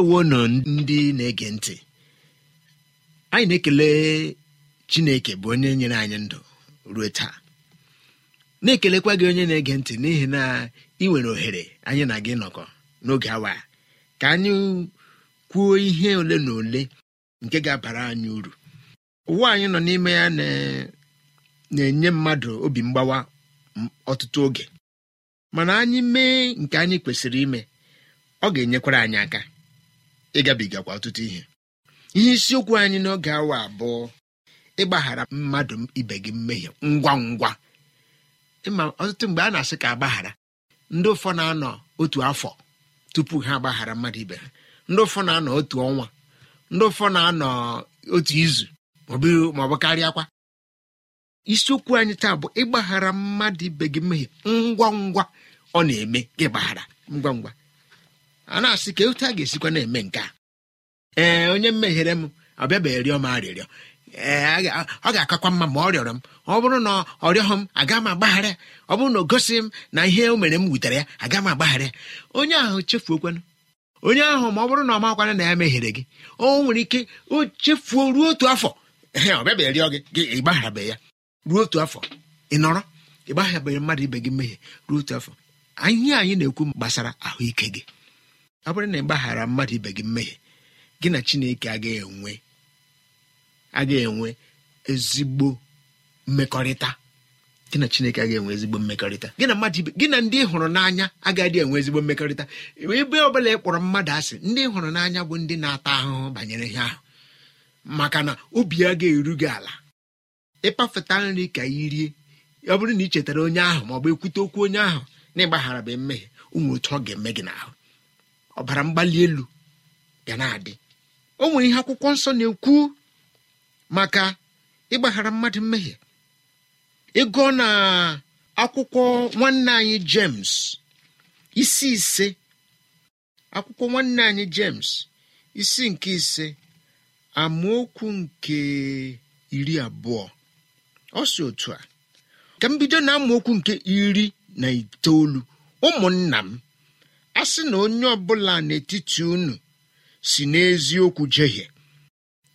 ndewo na ndị na-ege ntị anyị na-ekele chineke bụ onye nyere anyị ndụ ruo taa na-ekelekwa gị onye na-ege ntị n'ihi na ị nwere ohere anyị na gị nọkọ n'oge awa ka anyị kwuo ihe ole na ole nke ga-abara anyị uru ụwa anyị nọ n'ime ya na-enye mmadụ obi mgbawa ọtụtụ oge mana anyị mee nke anyị kwesịrị ime ọ ga-enyekwara anyị aka ịgabigakwa ọtụtụ ihe ihe isiokwu anyị n'oge awa abụọ ịgbaghara mmadụ ibe gị mmehie ngwa ngwa ịma ọtụtụ mgbe a na-asị ka agbaghara ndị ụfọ na-anọ otu afọ tupu ha agbaghara mmadụ ibe ha ndị ụfọ na-anọ otu ọnwa ndị ụfọ na-anọ otu izu maọbụ karịa akwa isiokwu anyị taa bụ ịgbaghara mmadụ ibe gị mmehie ngwa ngwa ọ na-eme ịgbaghara ngwa ngwa a na-asị ka otu a ga-esikwa na-eme nke a ee onye mmeghere m ọbịaba rịọ m arịrịọ ee ọ ga-akakwa mma ma ọ rịọrọ m ọ bụrụ na ọ rịọghị m aga m agbaghara ọ bụrụ na o gosighị m na ihe o mere m wutere ya aga m agbaghara onye ahụ chefuokwanụ onye ahụ ma ọ bụrụ na ọ makwana na ya meghere gị o nwere ike o chefuo ruo otu afọ ee ọ bịaba rịọ gị gị ịgbagharabeghị ya ruo otu afọ ị nọrọ ịgbagharabeghị mmadụ ibe gị mmehie ruo otu afọ ihe anyị na-ekwu gbasara ahụike gị ọ bụrụ na ị gbaghara mmadụ ibe gị mmehie gị na chineke agaghị enwe agaghị enwe ezigbo mmekọrịta gị na chineke agaghị enwe ezigbo mmekọrịta gị na mmadụ ibe gị na ndị hụrụ n'anya agaghị enwe ezigbo mmekọrịta ebe ọbụla ị kpọrọ mmadụ asị ndị hụrụ n'anya bụ ndị na-ata ahụhụ banyere ihe ahụ maka na obi ya ga-eru gị ala ịkpafeta nri ka i rie ọ bụrụ na ị chetara onye ahụ maọbụ ekwute okwu onye ahụ na ịgbaghara bụ mmehie ụmụ otu ọ ga-eme gị n'ahụ ọbara mgbali elu ga na-adị o nwere ihe akwụkwọ nsọ na-ekwu maka ịgbaghara mmadụ mmehie ịgụọ na akwụkwọ nwanne anyị jems isi ise akwụkwọ nwanne anyị jems isi nke ise amaokwu nke iri abụọ ọ si otu a ka m bido na amaokwu nke iri na itoolu ụmụnna m a sị na onye ọbụla n'etiti unu si n'eziokwu jehie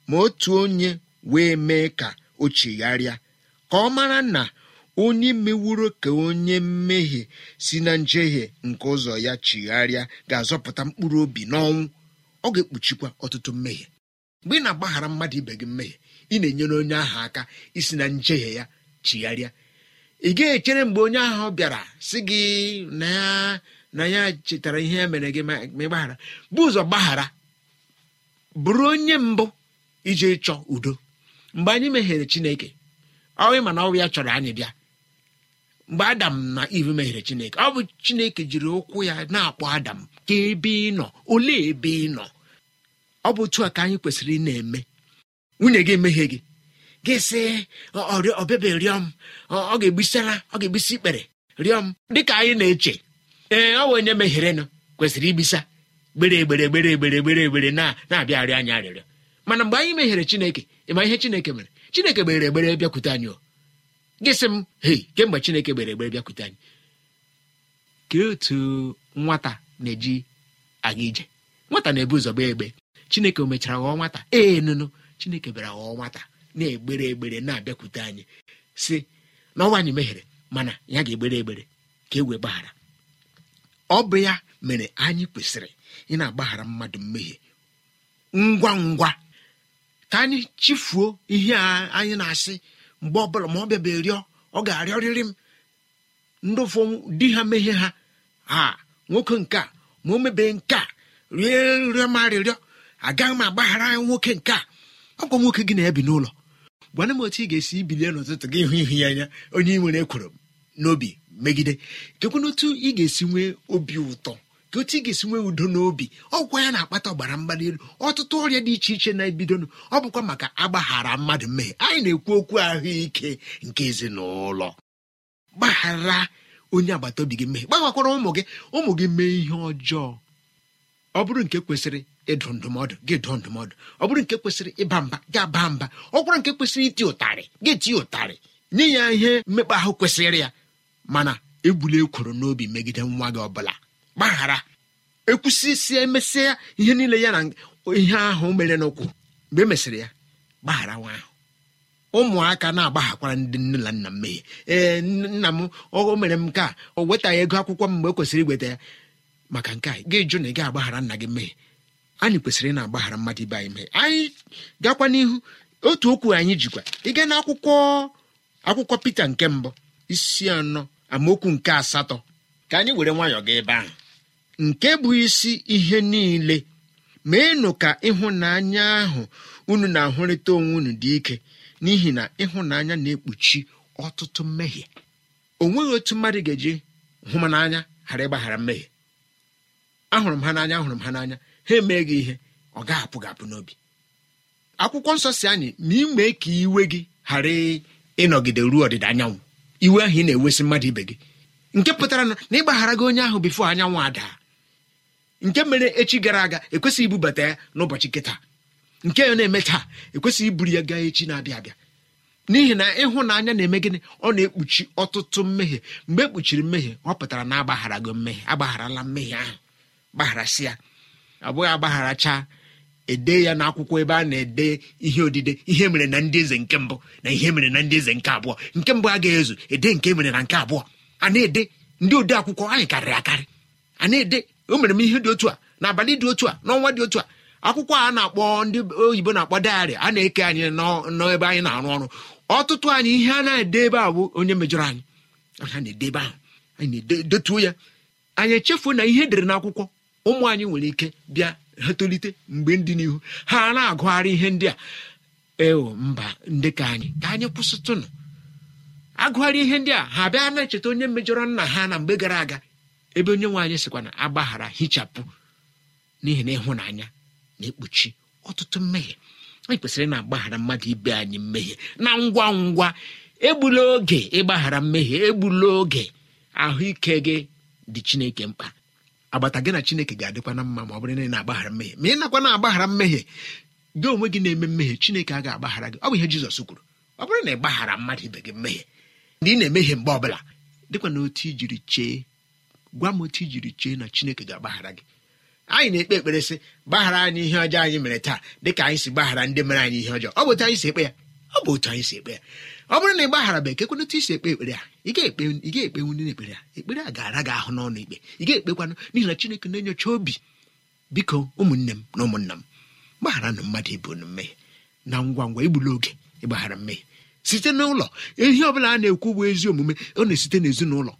ma otu onye wee mee ka o chigharịa ka ọ mara na onye meworo ka onye mmehie si na njehie nke ụzọ ya chigharịa ga-azọpụta mkpụrụ obi n'ọnwụ ọ ga-ekpuchikwa ọtụtụ mmehie mgbe ị na-agbaghara mmadụ ibe gị mmehie ị na-enyere onye ahụ aka isi na njehie ya chigharịa ị ga echere mgbe onye ahụ bịara sị gị na na ya chetara ihe ya mere gị ma ịgbaghara bụ ụzọ gbaghara bụrụ onye mbụ iji chọ udo mgbe anyị meghere chineke ọwụ mana ọnwụ ya chọrọ anyị bịa mgbe adam na iv meghere chineke ọ bụ chineke jiri ụkwụ ya na-akpọ adam ka ebe ị nọ olee ebe ị nọ ọ bụ otu a ka anyị kwesịrị ị na-eme nwunye gị emeghe gị gị sị ọbịabịa rịọ m ọ ga-egbisara ọ ga-egbisi ikpere rịọ m dịka anyị na-eche ee ọ onye nụ kwesịrị ibisa gbere egbere gbere egbere gbere egbere na na-abịagharị anyị arịrịọ mana mgbe anyị meghere chineke ịma ihe chineke mere chineke gbere egbere bịakwute anyị gị sị m hei kemgbe chineke gbere egbere bịakwute anyị kee otu nwata na-eji aga ije nwata na-ebu ụzọ gbaa egbe chineke o mechara ghọọ nwata ee nụnụ chineke bịara ghọọ nwata na-egbere egbere na-abịakwute anyị si n'ọnwa anyị meghere mana ya ga-egbere egbere ka e wee gbaghara ọ bụ ya mere anyị kwesịrị ị na-agbaghara mmadụ mmehie ngwa ngwa ka anyị chifuo ihe a anyị na-asị mgbe ọbụla ma ọ bịabe rịọ ọ ga-arịọrịrị m ndị di ha mehie ha a nwoke nke a ma o mebee nke a rie nrịọ ma arịrịọ agaghị m agbaghara ya nwoke nke a ọkwa nwoke gị na-ebi n'ụlọ gwana m otu ị ga-esi bilie n'ụtụtụ gị hụ ihu ya anya onye ị nwere ekworo m n'obi megide kekwe n'otu ị ga-esi nwee obi ụtọ ka otu ị ga-esi nwee udo n'obi ọgwụkwa ya na-akpata ọgbara mgbali elu ọtụtụ ọrịa dị iche iche na-ebidonụ ọ bụkwa maka agbaghara mmadụ mmehie anyị na-ekwu okwu ahụike nke ezinụlọ gbaghara onye agbata obi gị mmehie gbaghakwara ụmụ gị ụmụ gị mee ihe ọjọọ ọ bụrụ nke kwesịrị ịdụ ndụmọdụ gị dụọ ndụmọdụ ọ bụrụ nke kwesịrị ịba mba gị aba mba ọ bụrụ nke kwesịrị iti ụtarị gị tie ụtarị nye ya ihe mmekpa ahụ kwesịrị ya mana ebula ekworo n'obi megide nwa gị ọbụla gbaghara ekwusịsịa emesịa ihe niile ya na ihe ahụ mere n'ụkwụ mgbe e mesịrị ya gbaghara nwa ahụ ụmụaka na-agbaghakwara ndị nne na nna mmehie ee nna m o mere m nke a o wetaghị ego akwụkwọ m mgbe e kwesịrị iweta ya maka nke a gị jụ na ị ga-agbaghara nna gị mmehie anyị kwesịrị ịna na-agbaghara mmadụ ibe anyị mmehie anyị gakwa n'ihu otu okwu anyị jikwa ịga n'akwụkwọ akwụkwọ Pita nke mbụ isi anọ amaokwu nke asatọ ka anyị were nwayọọ gị ebe ahụ nke bụ isi ihe niile meenụ ka ịhụnanya ahụ unu na-ahụrịta onwe unu dị ike n'ihi na ịhụnanya na-ekpuchi ọtụtụ mmehie o nweghị otu mmadụ ga-eji hụ m n'anya ghara ịgbaghara mmehie ahụrụ m ha n'anya ahụrụ m ha n'anya ha emee gị ihe ọ gaghị apụ n'obi akwụkwọ nsọ si anyị ma ị mee ka iwe gị ghara ịnọgide ruo ọdịda anyanwụ iwe ahụ ị na-ewesị mmadụ ibe gị nke pụtara na ịgbaghara gị onye ahụ bifo anyanwụ ada nke mere echi gara aga ekwesịghị ibubata ya n'ụbọchị kịta nke ya na-eme taa ekwesịghị iburu ya gaa echi na-abịa abịa n'ihi na ịhụnanya na-eme gịnị ọ na-ekpuchi ọtụtụ mmehie mgbe ekpuchiri mmehie ọ pụtara na agbaghara gị mmehie agbagharala mmehie ahụ gbaghara sị ya abụghị agbagharacha ede ya n'akwụkwọ ebe a na-ede ihe odide ihe mere na ndị eze nke mbụ na ihe mere na ndị eze nke abụọ nke mbụ agaghị ezu ede nke mere na nke abụọ a na-ede ndị ode akwụkwọ anyị karịrị akarị a na-ede o mere m ihe dị otu a na abalị dị otu a n'ọnwa dị otu a akwụkwọ a na-akpọ ndị oyibo na-akpọ dayari a na-eke anyị n'ebe anyị na-arụ ọrụ ọtụtụ anyị ihe a na-ede ebe a bụ onye mejọrọ anyị a na-ede ebe ahụ anyị na-edetuo ya anyị echefuo na ihe edere n'akwụkwọ ụmụ anyị nwere ike bịa ha tolite mgbe ndị n'ihu ha na-agụgharị ihe ndị a ewo mba ndị ka anyị ka anyị kwụsịtụnụ agụgharị ihe ndị a ha bịa na-echeta onye mejọrọ nna ha na mgbe gara aga ebe onye nwe anyị sịkwa na agbaghara hichapụ n'ihi na ịhụnanya na-ekpuchi ọtụtụ mmehie anyị kwesịrị na-agbaghara mmadụ ibe anyị mmehie na ngwa ngwa egbula oge ịgbaghara mmehie egbula oge ahụike gị dị chineke mkpa agbata gị na chineke ga-adịkwa na mma ma ọ bụrụ na ị na-agbaghara mmehie ma ị nakwa na-agbaghara mmehie gị onwe gị na-eme mmehie chineke ga agbaghara gị ọ bụ ihe jizọs kwuru ọ bụrụ na ị gbaghara mmadụ ibe gị mmehie ndị ị na-emehie mgbe ọ bụla dịkwa na otu ijiri chee gwa m otu ijiri chee na chineke ga-agbaghara gị anyị na-ekpe ekpere sị gbaghara anyị ihe ọjọọ anyị mere taa dịka anyị si gbaghara ndị mere anyị ihe ọjọọ ọ bụ otu anyị si ekpe ya ọ bụ otu anyị si ekpe ya ọ bụrụ na ị bụ ka ekwenetụ isi ekpe ekpere a ị ga-ekpenwu ndị na-ekpere a ekpere a ga-ara gị ahụ n'ọnụ ikpe ị ga-ekpekwanụ n'ihi na chineke na-enyocha obi biko ụmụnne m na ụmụnna m gbaghara na mmadụ ibu na mmehie na ngwa ngwa igbula oge ịgbaghara mmehie site n'ụlọ ihe ọ bụla a na-ekwu bụ ezi omume ọ na-esite n'ezinụlọ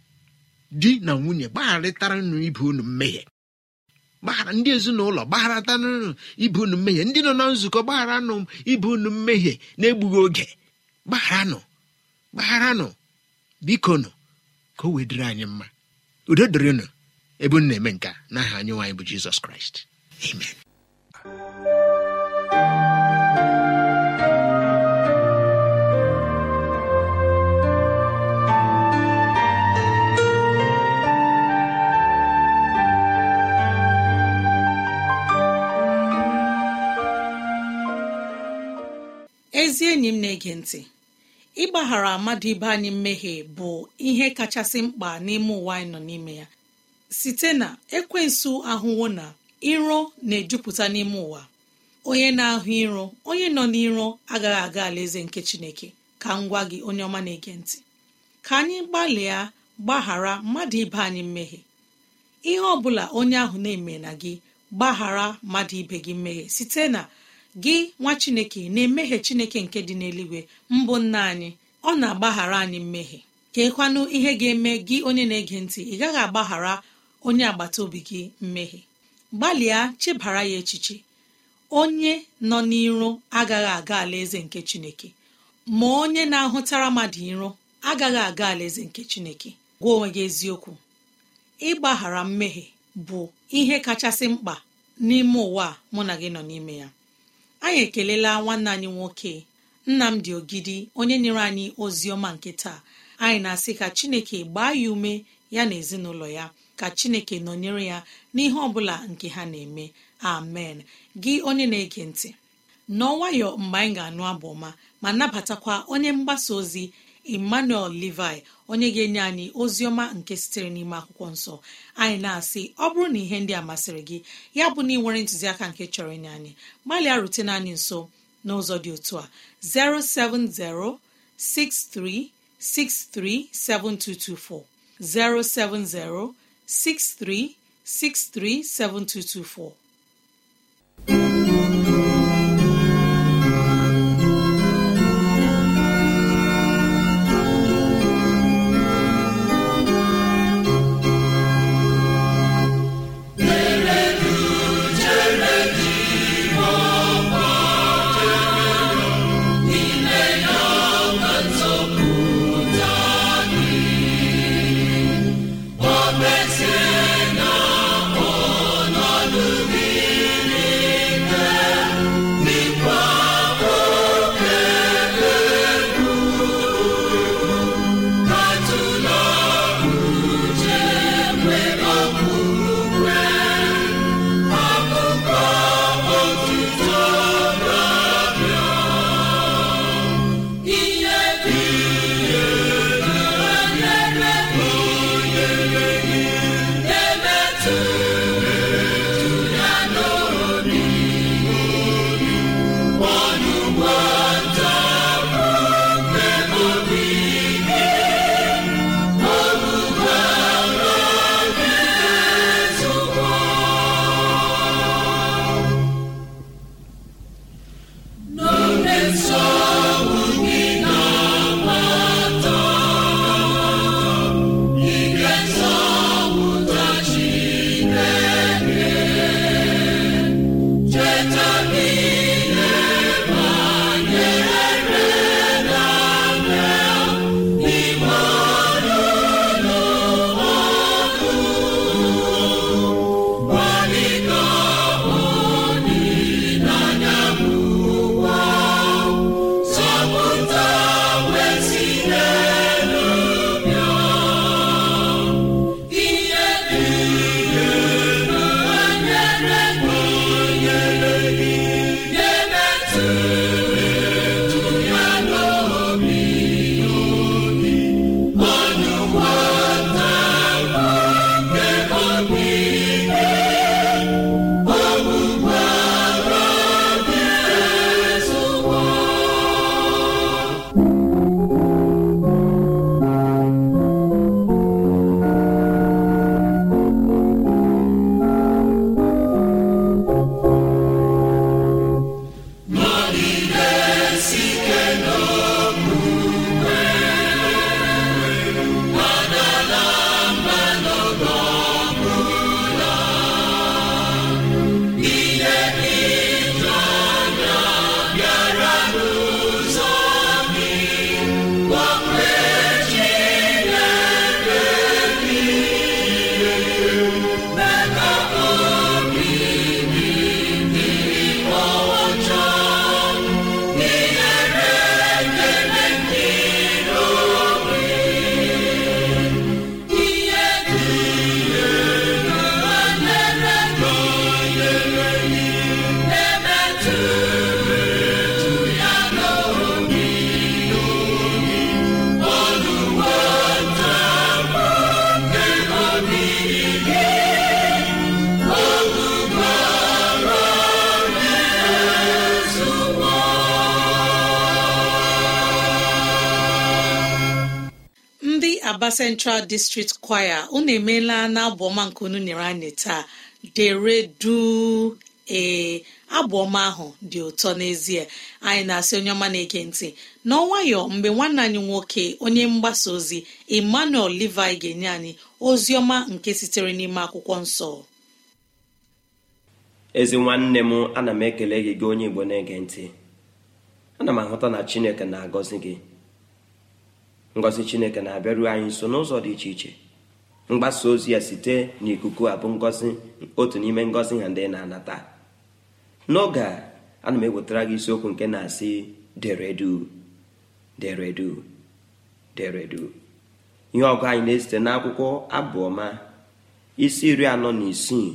di na nwunye gbagharịtara nụ ibu unu mmehie gbaghara ndị ezinụlọ gbagharatanụ ibe unu mmehie ndị nọ na nzukọ gbaghara nụ unu mmehie na-egbughị oge gbagharanụ gbagharanụ biko nụ ka o wee dịrị anyị mma udo nụ ebe m na-eme nka n'aha anyị nwaanyị bụ jizọs kraịst amen ezi enyi m na-ege ntị ịgbaghara mmadụ ibe anyị mmehie bụ ihe kachasị mkpa n'ime ụwa anyị nọ n'ime ya site na ekwensụ ahụwo na iro na-ejupụta n'ime ụwa onye na-ahụ iro onye nọ n'iro agaghị aga alaeze nke chineke ka m gwa gị onye ọma na-ege ntị ka anyị gbalịa gbaghara mmadụ ibe anyị mmehie ihe ọ bụla onye ahụ na-eme na gị gbaghara mmadụ ibe gị mmehie site na gị nwa chineke na-emehie chineke nke dị n'eluigwe mbụ nna anyị ọ na-agbaghara anyị mmehie keekwanụ ihe ga-eme gị onye na-ege ntị ị gaghị agbaghara onye agbata obi gị mmehie gbalịa chebara ya echiche onye nọ n'iro agaghị aga alaeze nke chineke ma onye na-ahụtara mmadụ iro agaghị aga alaeze nke chineke gwa onwe gị eziokwu ịgbaghara mmehie bụ ihe kachasị mkpa n'ime ụwa mụ na gị nọ n'ime ya anyị ekelela nwanne anyị nwoke nnamdi ogidi onye nyere anyị ozi ọma nke taa anyị na-asị ka chineke gbaa ya ume ya na ezinụlọ ya ka chineke nọnyere ya n'ihe ọbụla nke ha na-eme amen gị onye na-ege ntị nọọ nwayọ mgbe anyị ga-anụ abụ ọma ma nabatakwa onye mgbasa ozi emmanuel levi onye ga-enye anyị ozi ọma nke sitere n'ime akwụkwọ nsọ anyị na-asị ọ bụrụ na ihe ndị a masịrị gị ya bụ na ị nwere ntụziaka nke chọrọ ịnye anyị gbalịa rutene anyị nso n'ụzọ dị otu a 070 07063637224 7224. Asaba Central District Choir unu emeela na abụọma nke unu nyere anyị taa dere du ee Abụọma ahụ dị ụtọ n'ezie anyị na-asị onye ọma na-ege ntị n'ọnwayọ mgbe nwanne anyị nwoke onye mgbasa ozi Emmanuel Levi ga-enye anyị ozi ọma nke sitere n'ime akwụkwọ nsọ ezi nwanne m ana m ekele gị onye Igbo na-ege ntị ana m ahụta na Chineke na-agọzi gị ngozi chineke na-abịaru anyị nso n'ụzọ dị iche iche mgbasa ozi ya site n'ikuku abụ ngọzi otu n'ime ngozi ha ndị na-anata n'oge a ana m ewetara gị isiokwu nke na-asị deredu deredu deredu ihe ọgụ anyị na esite n'akwụkwọ abụọma isi isi iri anọ na isii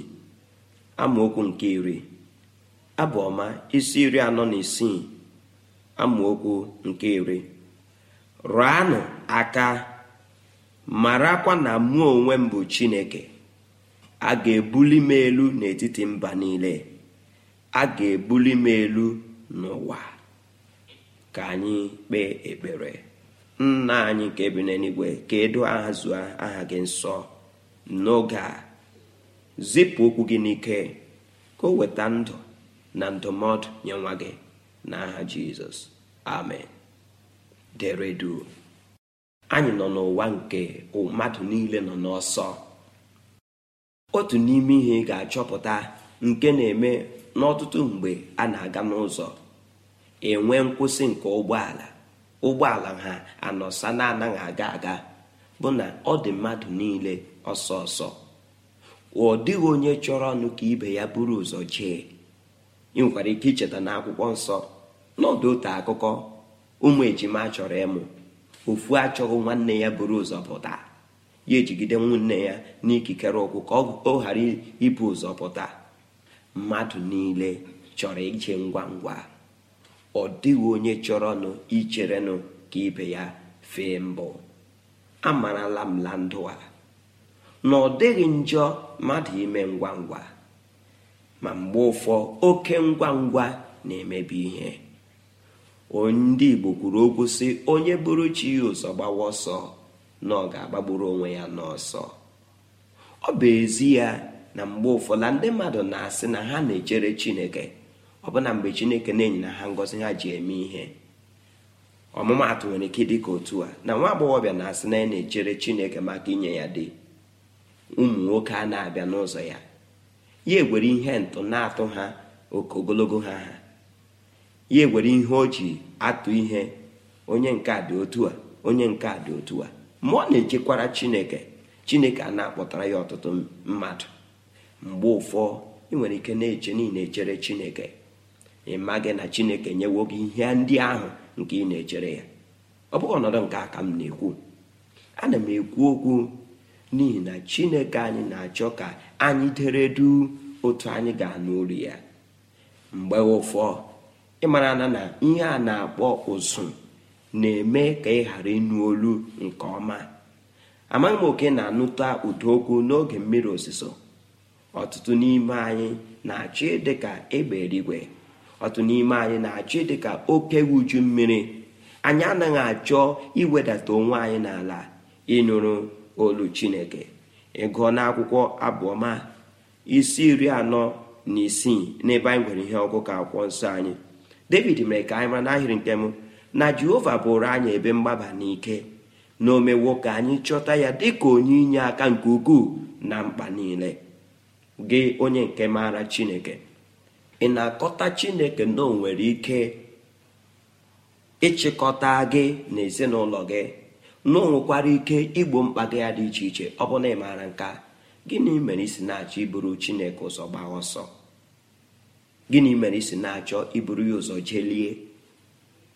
amaokwu nke iri rụanụ aka marakwa na mụ onwe m bụ chineke a ga-ebuli m elu n'etiti mba niile a ga-ebuli m elu n'ụwa ka anyị kpee ekpere nna anyị nke bi n'eluigwe ka edo aha zụa aha gị nsọ n'oge a zipụ okwu gị n'ike ka o weta ndụ na ndụmọdụ nye nwa gị n'aha jizọs amen dere anyị nọ n'ụwa nke mmadụ niile nọ n'ọsọ otu n'ime ihe ga-achọpụta nke na-eme n'ọtụtụ mgbe a na-aga n'ụzọ enwe nkwụsị nke ụgbọala ụgbọala ha anọsa na-anaghị aga aga bụ na ọ dị mmadụ niile ọsọ ọsọ ọ dịghị onye chọrọ ọnụ ka ibe ya buru ụzọ jee ị nwekwara ike icheta na akwụkwọ nsọ n'ọdụ otu akụkọ ụmụ ejima chọrọ ịmụ ofu achọghị nwanne ya buru ụzọpụta ya ejigide nwanne ya n'ikikere ụkwụ ka ọ ghara ibu ụzọpụta. mmadụ niile chọrọ ije ngwa ngwa ọ dịghị onye chọrọ chọrọnụ icherenụ ka ibe ya fee mbụ amarala m la ndụ a na ọ dịghị njọ mmadụ ime ngwa ngwa ma mgbe ụfọ oke ngwa ngwa na-emebi ihe ndị igbo kwuru okwu sị onye bụrụ chi ụzọ gbawa ọsọ na ọ ga-agbagburu onwe ya n'ọsọ ọ bụ ezi ya na mgbe ụfọdụ ndị mmadụ na-asị na ha na-echere chineke ọ na mgbe chineke na-enyi na ha ngọzi ha ji eme ihe ọmụmaatụ nwere ike dị ka otu a na nwa agbọghọbịa na-asị na ya na-echere chineke maka inye ya dị ụmụ nwoke a na-abịa n'ụzọ ya ya egwere ihe ntụ na-atụ ha oke ogologo ha ha ya ewere ihe o ji atụ ihe onye nke a dị otu a onye nke a dị otu a ma ọ na-echekwara chineke chineke a na-akpọtara ya ọtụtụ mmadụ mgbe ụfọ ị nwere ike na-eche niile echere chineke ị gị na chineke nyewo gị ihe ndị ahụ nke ị na-echere ya ọ bụghị ọnọdụ nke a m na-ekwu ana m ekwu okwu n'ihi na chineke anyị na-achọ ka anyị dere du otu anyị ga-anụ olu ya mgbe ụfọ ịmara na na ihe a na-akpọ ụzụ na-eme ka ị ghara ịnụ olu nke ọma amaghị m oke na-anụta ụda okwu n'oge mmiri osisọ ọtụtụ n'ime anyị na-achị dịka egbe eluigwe ọtụtụ n'ime anyị na-achị dịka oke uju mmiri anyị anaghị achọ iwedata onwe anyị n'ala ịnụrụ olu chineke ịgụọ n'akwụkwọ abụọma isi iri anọ na isii n'ebe anyị nwere ihe ọgụgụ akwụkwọ nsọ anyị david mere ka anyị mara n'ahịrị nke mụ na jehova bụrụ anyị ebe mgbaba n'ike na omewo ka anyị chọta ya dịka onye inye aka nke ukwuu na mkpa niile gị onye nke maara chineke ị na-akọta chineke na o nwere ike ịchịkọta gị na ezinụlọ gị na o nwekwara ike igbo mkpa gị ya dị iche iche ọ bụ na ị maara nka gịnị mere isi na-achọ iburu chineke ụzọ gbaa ọsọ gịnị mere isi na-achọ iburu ya ụzọ jelie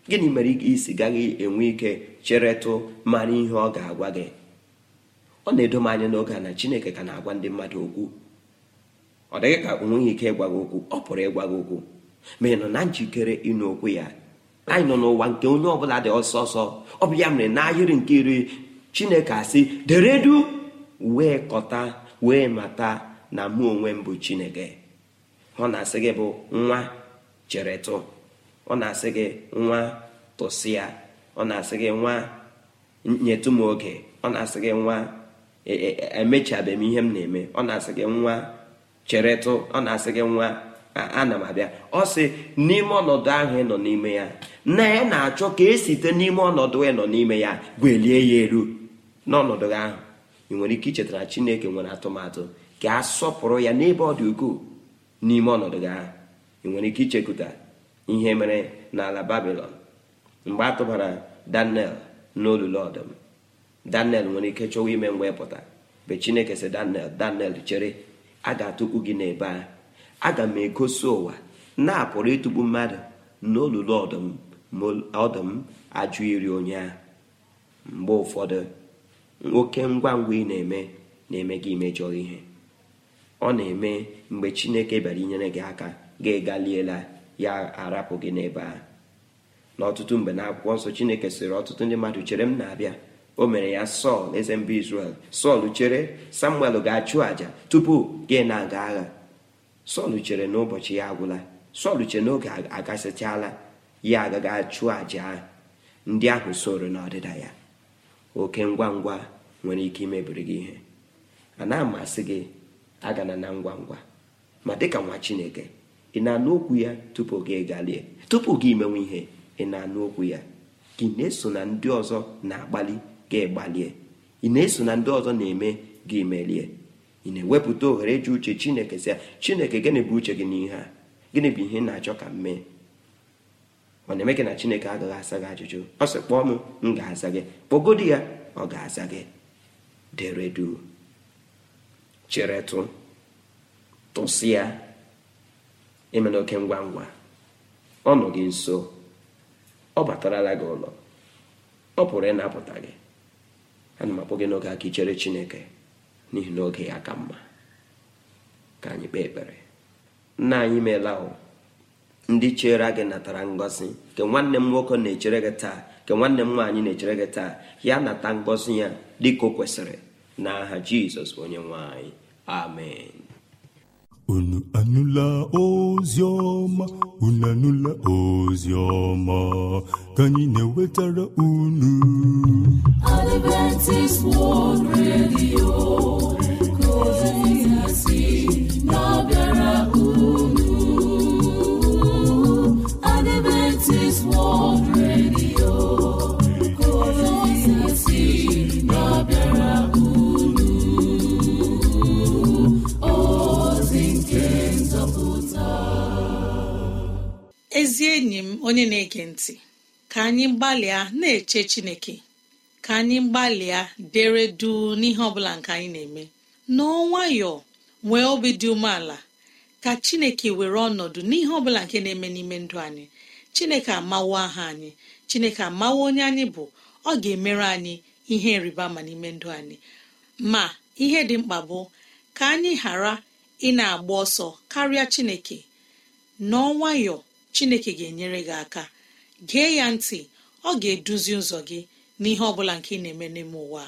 gịnị mere isi gaghị enwe ike cheretụ mara ihe ọ ga-agwa gị ọ na-edo m anya n'oge a na chineke ka na-agwa ndị mmadụ okwu ọ dịghị ka o nweghị ike ịgwa gị okwu ọ pụrụ ịgwa gị okwu ma ị nọ na njikere ịnụ okwu ya anyị nọ n'ụwa nke onye ọbụla dị ọsọ ọsọ ọ bụ ya mere n'ahịrị nke iri chineke asị deredu wee kọta wee mata na mụ onwe m bụ chineke ọ na-asị gị bụ nwa cheretụ ọ na-asị gị nwa tụsịa ọ na-asị gị nwa nyetụ m oge ọ na-asị gị nwa e, e, e, emechabeghị m ihe m na-eme ọ na-asị gị nwa cheretụ ọ na-asị gị nwa ana m abịa ọ sị n'ime ọnọdụ ahụ ị nọ n'ime ya na ya na-achọ ka esite n'ime ọnọdụ ị nọ n'ime ya gwelie ya elu n'ọnọdụ ahụ ị nwere ike ichetara chineke nwere atụmatụ ka a sọpụrụ ya n'ebe ọ dị ukwuu n'ime ọnọdụ gị ahụ ị nwere ike ichekụta ihe mere n'ala babilọn mgbe a tụbara daniel n'olulu ọdụm daniel nwere ike chọwa ime mgbe pụta mgbe chineke sị daniel daniel chere a ga-atụkpu gị n'ebe a aga m egosi ụwa na-apụrụ ịtụkpu mmadụ n'olulu ọdụm ọdụm ajụ iri onye mgbe ụfọdụ nwoke ngwa ngwa ị na-eme na-eme gị imejọ ihe ọ na-eme mgbe chineke bịara inyere gị aka gị galiela ya arapụ gị n'ebe a n'ọtụtụ mgbe na akwụkwọ nsọ chineke sịrị ọtụtụ ndị mmadụ chere m na-abịa o mere ya sọl eze mba izrel sọl chere samuel ga-achụ àjà tupu gị na-aga agha sọl chere n'ụbọchị ya agwụla sọl chere n'oge oge agasịchala ya agaghị achụ àja ndị ahụ soro n'ọdịda ya oke ngwa ngwa nwere ike imebiri gị ihe a na-amasị gị agana na ngwa ngwa ma dịka nwa chineke ị na-anụ okwu ya tupu gị galie tupu gị imenwe ihe ị na-anụ okwu ya gị na-eso na ndị ọzọ na-agbalị gị gbalie ị na-eso na ndị ọzọ na-eme gị merie ị na-ewepụta ohere ji uche chineke sị chineke gịnị bụ uche gị n'ihe a gịnị bụ ihe ị na-achọ ka m mee ọ na-eme gị na chineke agaghị asa gị ajụjụ ọ sị kpọọ m m ga-aza gị kpọgodi ya ọ ga-aza gị deredu chere cheretụ tụsịa emena oke ngwa ngwa ọ nọ gị nso ọ batarala gị ụlọ ọ pụrụ ịnapụta gị ana m akpọ gị n'oge aka ichere chineke n'ihi na oge ya ka mma ka anyị kpee ekpere nna anyị meela ahụ ndị chere gị natara ngọzi nke nwanne m nwoke na-echere gị taa nke nwanne m nwaanyị na-echere gị taa ya nata ngọzi ya dịka o kwesịrị n'aha jizọs onye nwanyị. amen unu anụla ozi unu anụla ozi ka anyị na-ewetara unu Adventist World Radio ezi enyi m onye na-ege ntị ka anyị gbalịa na-eche chineke ka anyị gbalịa dere duu n'ihe ọ bụla nke anyị na-eme n'ọ nwayọọ nwee obi dị umeala ka chineke were ọnọdụ n'ihe ọ bụla nke na-eme n'ime ndụ anyị chineke amawo aha anyị chineke amawo onye anyị bụ ọ ga-emere anyị ihe nrịba ma n'ime ndụ anyị ma ihe dị mkpa bụ ka anyị ghara ị na-agba ọsọ karịa chineke n'ọ nwayọọ chineke ga-enyere gị aka gee ya ntị ọ ga-eduzi ụzọ gị n'ihe ọ bụla nke ị na-eme n'ime ụwa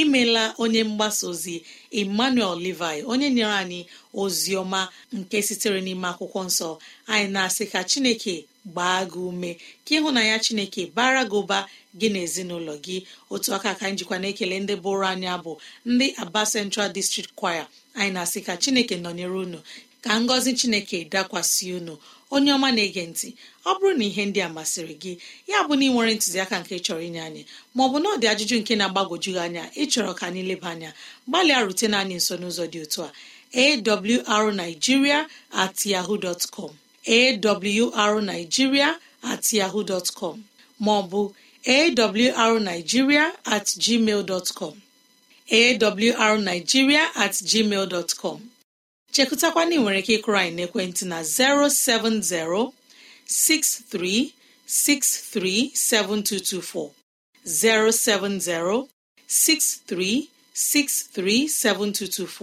imela onye mgbasa ozi emmanuel levi onye nyere anyị ozi ọma nke sitere n'ime akwụkwọ nsọ anyị na-asị ka chineke gbaa gị ume ka na ya chineke bara gị ụba gị na ezinụlọ gị otu aka ka njikwa na-ekele ndị bụrụ anya bụ ndị aba central district choir anyị na-asị ka chineke nọnyere unu ka ngọzi chineke dakwasị unu onye ọma na-ege ntị ọ bụrụ na ihe ndị a masịrị gị ya bụ na ị nwere ntụziaka nke chọrọ inye anyị maọbụ na ọ dị ajụjụ nke na-agbagwoju gị anya ịchọrọ ka anyị leba anya gbalịa rutena anyị nso n'ụzọ dị otu a awrnigeria at yahoo at maọbụ at at gmail chekụtakwana ị nwere ike ịkụrụ anyị n'ekwentị na 07063637224 7224.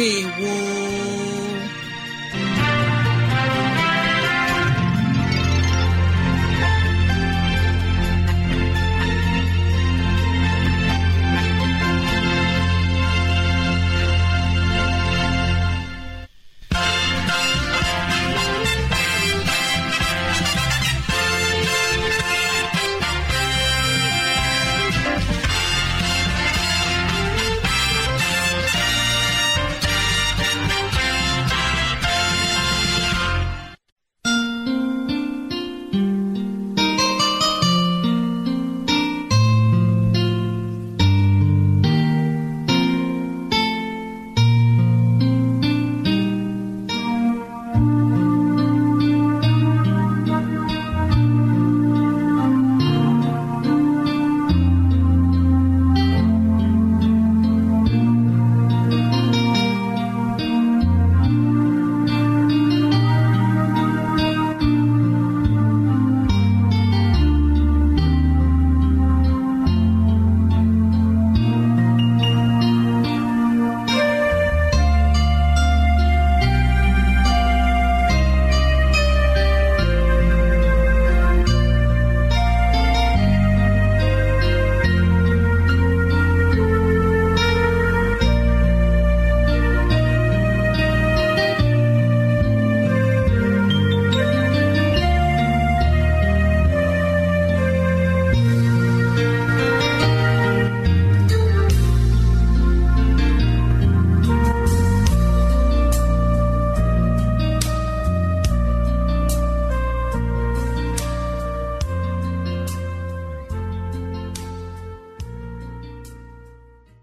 ndewo